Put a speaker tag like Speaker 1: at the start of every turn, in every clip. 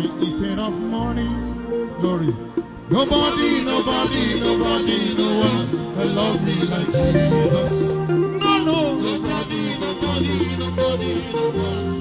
Speaker 1: going instead of money. Glory. Nobody, nobody, nobody, no one can love me like Jesus. No, no. Nobody, nobody, nobody, no one.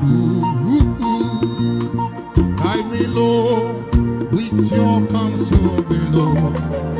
Speaker 1: Guide me, Lord, with your counsel below.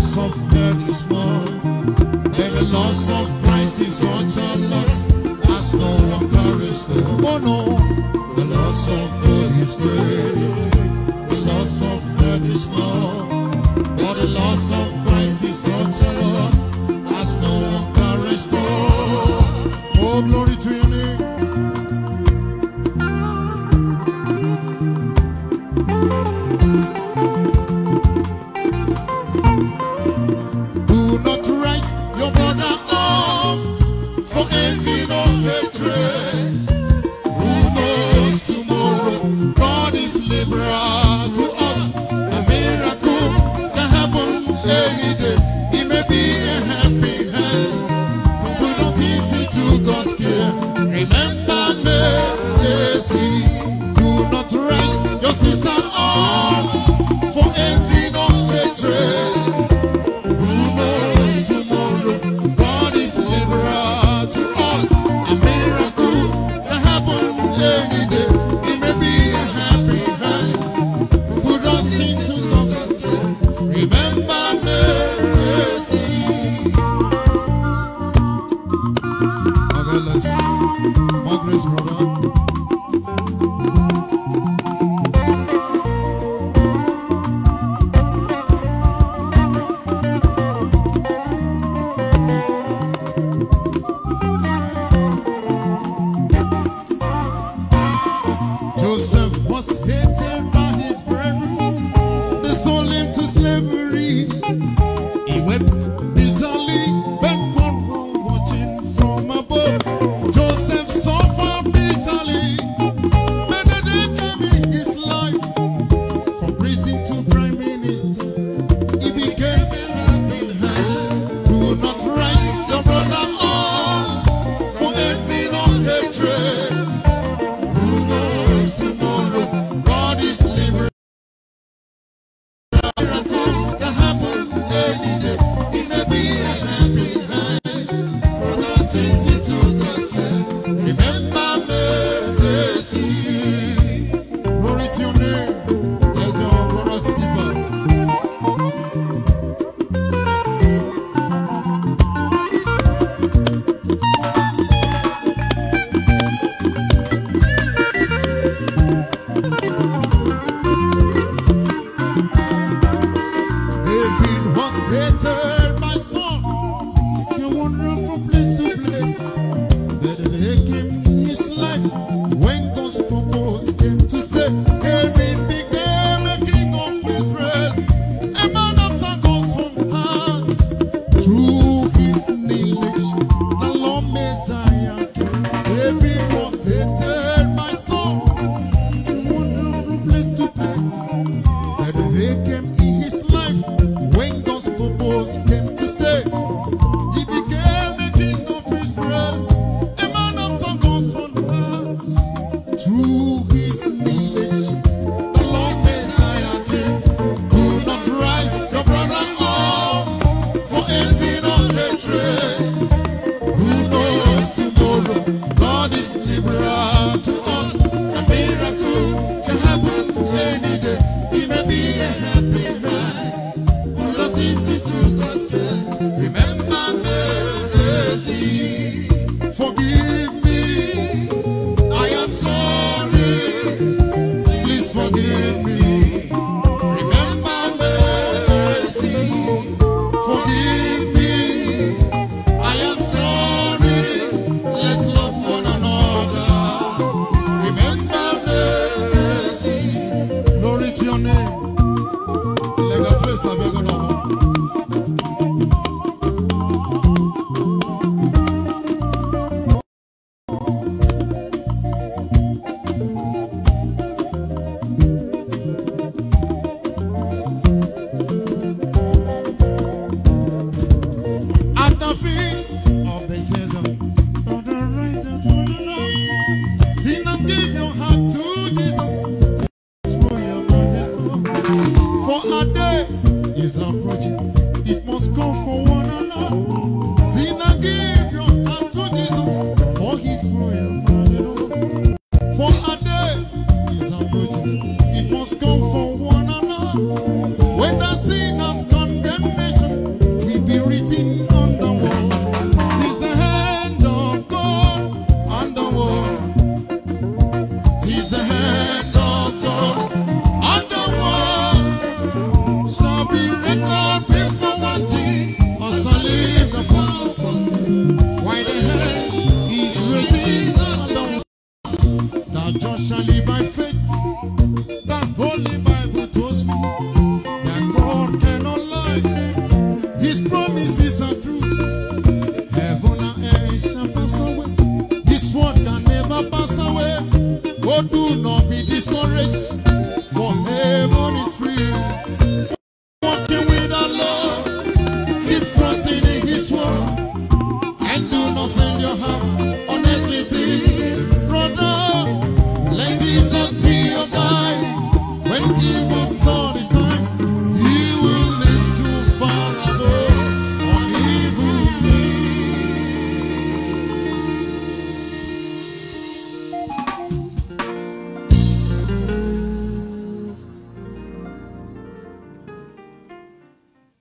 Speaker 1: loss of bread is more, and the loss of Christ is such a loss as no one perished. Oh no, the loss of God is great. God bless. brother.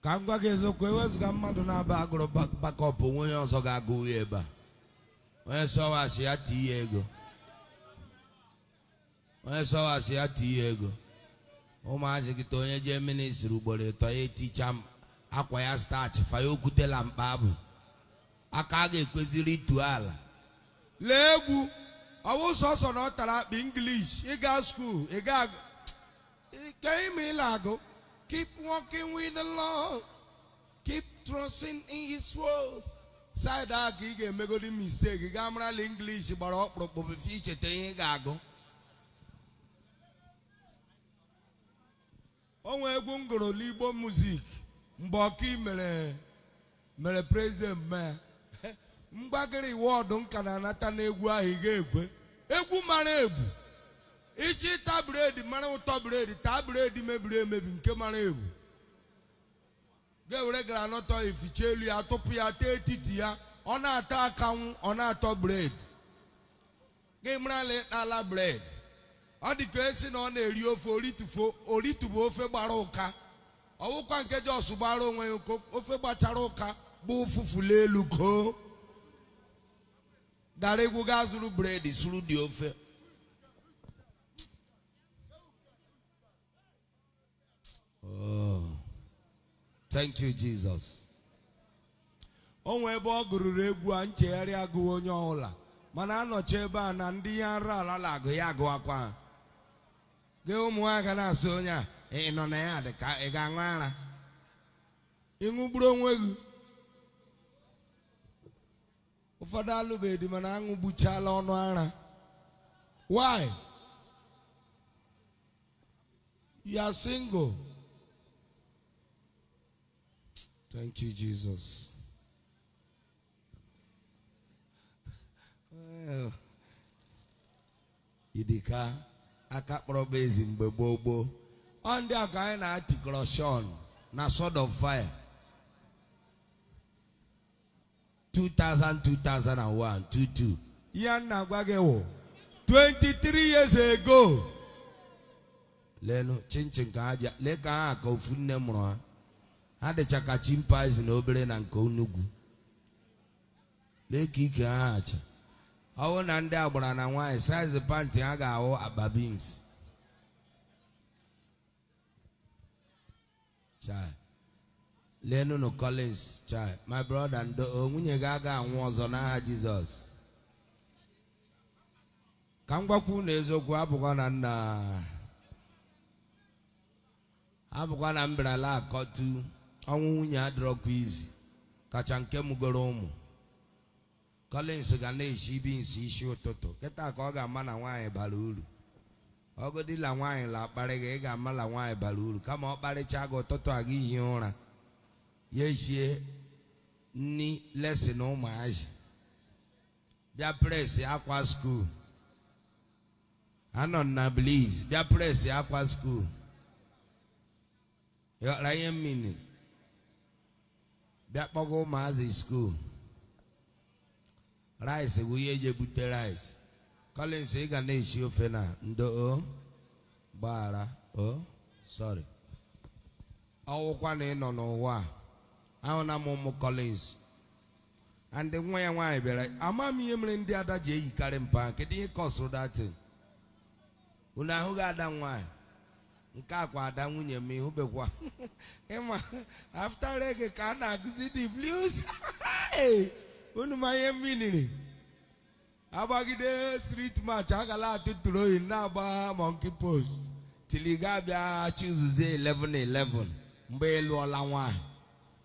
Speaker 2: ka m gwa gị eziokwu ewezuga mmadụ na-aba agụrụ bakọp onwe onye ọzọ ga-agụ ya ebe a onye sọwasị ya tie ego onye sọwasị ya ego ụmụazị gị ta onye jee ministri ugboro ịtọ ya eticha akwa ya stach faya okwutela mkpa abụ aka a ga-ekweziri itu ala lee egwu ọwụ sọsọ na ọ tara akpa English ịga skuul ịga ke ime ịla agụ keep working with the Lord keep trusting in his word saịdị a ka ị ga-emegodi mistake gaa marala English gbara ọkpụrụkpụ icheta ihe ị ga-agụ onwe egwu m gụrụ n'igbo muzik mgbe ọka mere mere prezident mee mgbagịrị wọdụ m ka na-anata n'egwu ahụ ị ga egwu mara egwu ichita taa bred mara ụtọ bred taa bred mebiri emebi nke mara egwu ga-ewere granọtọ ificha elu ya tụpụ ya tee etiti ya ọ na-ata akanwụ ọ na-atọ bred gị mara ala bred ọ dị ka esi na ọ na-eri ofe oritufo oritubu ofe gbara ụka ọwụkwa nke jọs gbara onwe ya ụko ofe gbachara ụka bụ ụfụfụla elu koo dara egwu gaa zụrụ bred zụrụ dị ofe oh. thank you jesus o ebe ọ gụrụrụ egwu a nchegharị agụwa onye ọbụla mana anọchi ebe a na ndị ya nra ala na agụ ya agụwakwa ha gị ụmụaka na-asụ onye na ya dị ka ị ga-aṅụ ara ịṅụgburu onwe gị ụfọdụ alụbeghị mana why you are single thank you jesus idika aka kpọrọ bụ ezi mgbe gboo gboo ọ ndị a ka anyị na-atịkọrọshọn na sword of fire 2000 2001 22 ihe nna gwa gị wụ 23 years ago lenu chinchin ka ha ji lee ka ha ka ofu nne mụrụ ha ha dịcha ka chimpanzee na obere na nke onugwu lee ka ike ha acha ọwụ na ndị agbara na nwaanyị saịz panti ha ga-ahụ akpa bins chai lenunu collins chai my brother ndo nwunye gị aga anwụ ọzọ n'aha jizọs ka m gwakwu na eziokwu abụkwa na nna abụkwa na mberala akọtu ọnwụ nwunye adịrọkwa izu kacha nke mụgoro ụmụ Collins ga na ibi bins isi ụtụtụ kịta ka ọ ga-ama na nwaanyị bara uru ọgụdịla nwaanyị la akpari gị ị ga-ama na nwaanyị bara uru kama ọ kparịcha gị ụtụtụ a gị hie ụra ya eshie nni lesin ụmụazị bịa presi akwa skuul anọ na bliz bịa presi akwa skuul yọra ihe mmiri bịa kpọga ụmụazị skuul rice bụ ihe eji ebute rice Collins ị ga na-esi ofe na ndo o gbaghara o sorry ọwụkwa na ịnọ nọ n'ụwa ahụ na m ụmụ Collins and nwa ya nwaanyị bịara ama m ihe mere ndị ada ji eyikarị mpa kedu ihe kọsụrụ datin unu ahụghị ada nwaanyị nke akwa ada nwunye m bekwa ịma after reggae ka a na-agụzi the blues unu ma ihe mmiri agbagide street match agala atụ troyi na-agba monkey post tili ga abịa chụzuzie 11-11 mgbe ịlụọla nwanyị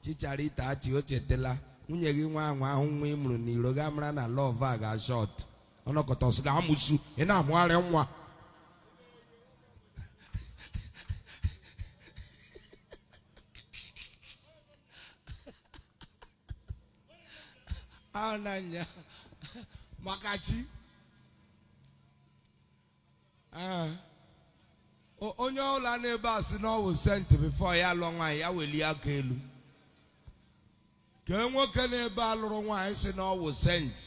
Speaker 2: chichara ite achị o nwunye gị nwa anwa ahụ nwa ị mụrụ n'iro ga mara na lọv a ga shọt ọnọkọta ọsụ ga-amụsu ị na-amụgharị nwa ahụ na-anya maka chi ah. onye na n'ebe a si n'ọwụ senti bifọ ya lụọ nwaanyị ya welie aka elu e nwoke n'ebe a lụrụ nwaanyị si n'ọwụ ọwụ senti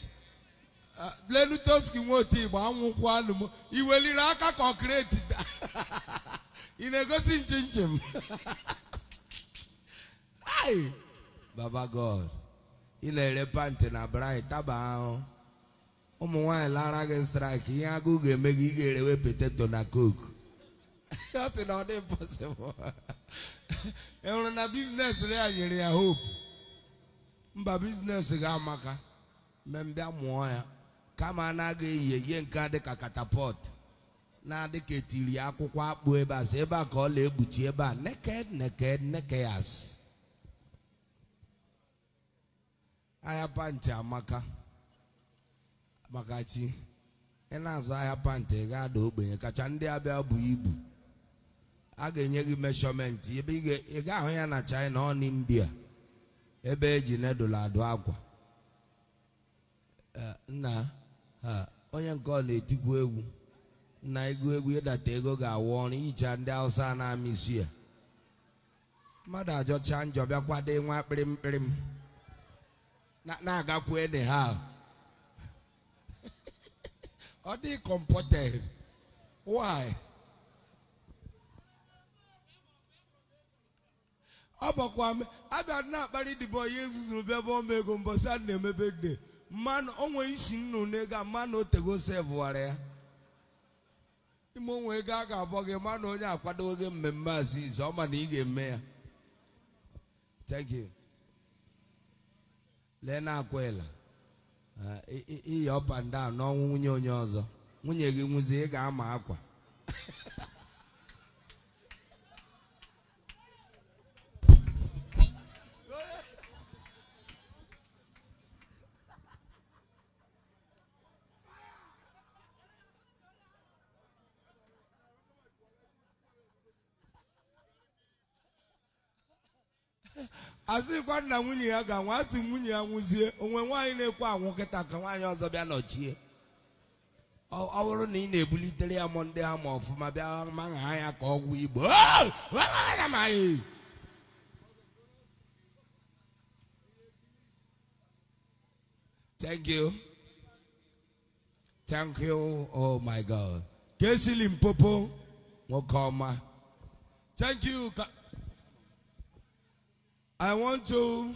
Speaker 2: ah, lenutoski nwotu igbo anwụkwanụ iweliri aka kọkreti ị na-egosi nchim nchim baba god ị na-ere panti na brai taba ahụ ụmụ nwaanyị lara gị straịkị ihe agụụ ga-eme gị ị ga-erewe poteto na koku ọ sị na ọ dị pọsịbụl enwere na biznes ya nyere ya hope mba biznes ga-amaka mbịa mụọ ya kama anaghị eyi ihe nke a dịka katapọt na-adị ka etiri akwụkwọ akpụ ebe a sị ebe a ka ọ na-egbuchi ebe a neked neked nekeyas ahịa pantị amaka makachi ị na-azụ ahịa pantị ga-ada ogbenye kacha ndị abịa bụ ibu a ga-enye gị meshọmentị ebe ị ga-ahụ ya na China ọ India ebe eji nedụla adụ akwa nna onye nke ọ na-etikwu egwu na ego egwu ịdata ego ga-awụ ọrụ ihicha ndị Hausa na-amịsụ ya mmadụ ajọcha njọ bịakwado nwa kpịrịm na-agakwu ede ha ọ dị comported why ọ bụkwa abịa na-akparị dịbọ ihe zuzuru bịa bụ ọma ego mbọsị a na-emebe de mmanụ onwe isi nnu n'ego a mmanụ otego sevụwara ya ime onwe ego a ga-abọ gị mmanụ onye akwadoghị gị mmemme aziz ọ ma na ị ga-eme ya thank you lee na akwela ah, iyi up and down n'ọnwụ nwunye onye ọzọ nwunye gị nwụzie ị ga-ama akwa azụghịkwa nna nwunye ya ga-anwụ nwunye ya nwụzie onwe nwanyị na ekwu anwụ nkịta ka nwaanyị ọzọ bịa nọchie ọ bụrụ na ị na-ebulitere ya ndị ha ma ọfụma bịa maha anya ka ọgwụ igbo thank you thank you oh my god ka e nwoke ọma I want to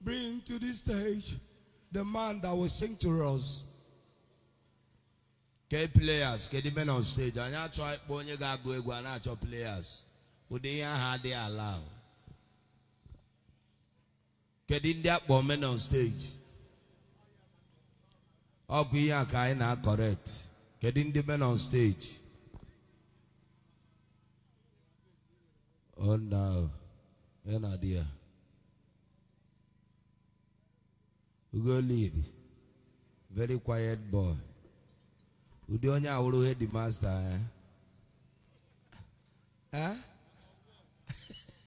Speaker 2: bring to this stage the man that will sing to us. Ke players, ke the men on stage. Anyị achọ ịkpọ onye ga-agụ egwu, a achọ e e players. Ụdị ihe ahụ adịghị ala. Kedu ndị akpọ men on stage? Ọ ihe aka ka anyị e na-akọrekt. Kedu ndị men on stage? Oh no. ya na di ya very quiet boy ụdị onye awụrụ headmaster ya eh?